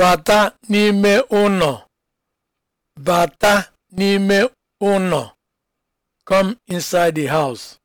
Bata n'ime ụlọ. Bata n'ime ụlọ. Come inside the house.